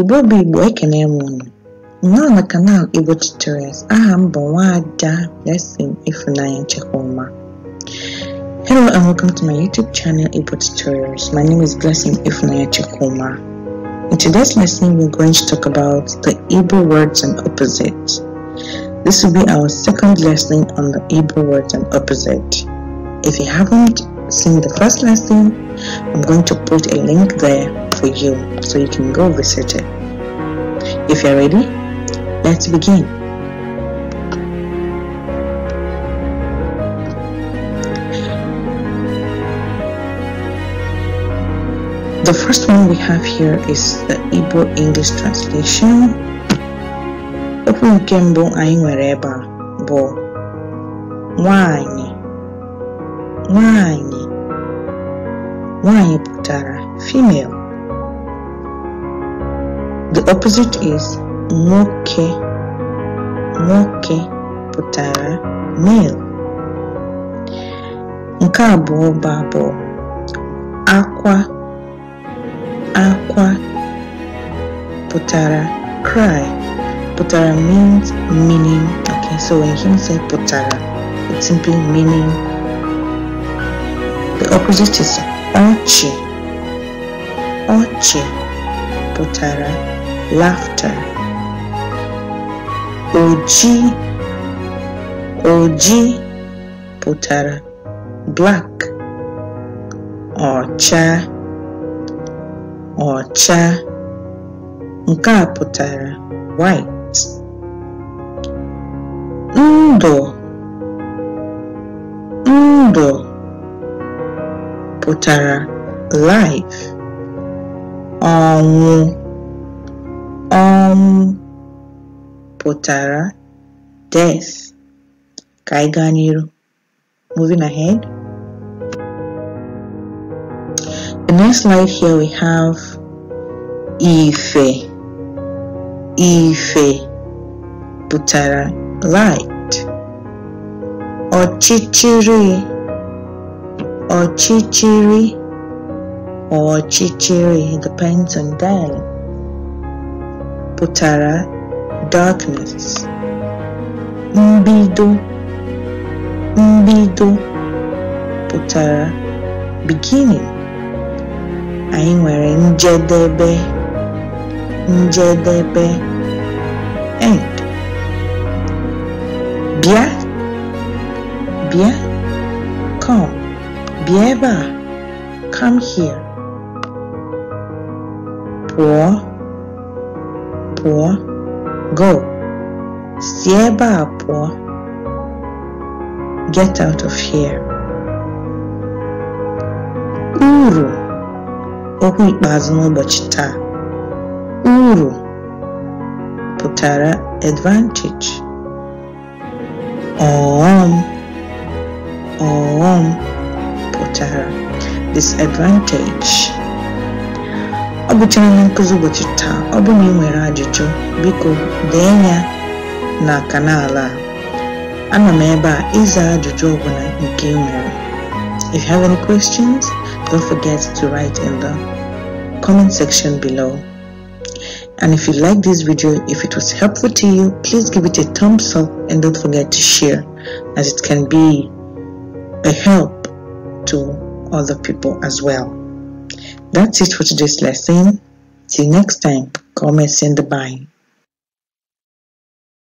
igbo bụ igbo ekene m unu nọ na kanal igbo tutorials aha m bụ nwaada blessing ifunanya nchekwuma hello and welcome to my youtube channel igbo tutorials my name is blessing ifunanya nchekwuma in today's lesson we're going to talk about the igbo words and opposites this will be our second lesson on the igbo words and opposite if you haven't seen the first lesson I'm going to put a link there for you so you can go visit it. If you're ready, let's begin. The first one we have here is the Igbo English translation. Okwu nke nwanyị pụtara female the opposite is nwoke nwoke pụtara male nke abụọ bụ akwa akwa pụtara cry pụtara means meaning okay so when him said pụtara it simply meaning the opposite is ọchị ọchị pụtara laughter ojii ojii pụtara black ọcha ọcha nke a pụtara white ndụ pụtara life ọnwụ ọnwụ pụtara death ka anyị gaa n'iru moving ahead the next life here we have ife ife pụtara light ọchịchịrị Ọchịchịrị ọchịchịrị depends on them pụtara darkness mbido mbido pụtara beginning anyị nwere njedebe njedebe end Abba, come here. Poor, poor, go. Sieba, poor, get out of here. Uru, okwu ikpeazụ n'ụbọchị Uru pụtara advantage. Oh, oh to her disadvantage ọ gụchara ihe nkụzi ụbọchị taa ọ bụrụ na ị nwere ajụjụ biko dee ya na kanal a ana m ebe a ịza ajụjụ ọbụla nke ị nwere if you have any questions don't forget to write in the comment section below and if you like this video if it was helpful to you please give it a thumbs up and don't forget to share as it can be a help to other people as well. That's it for today's lesson. Till next time. Comment, send the bye.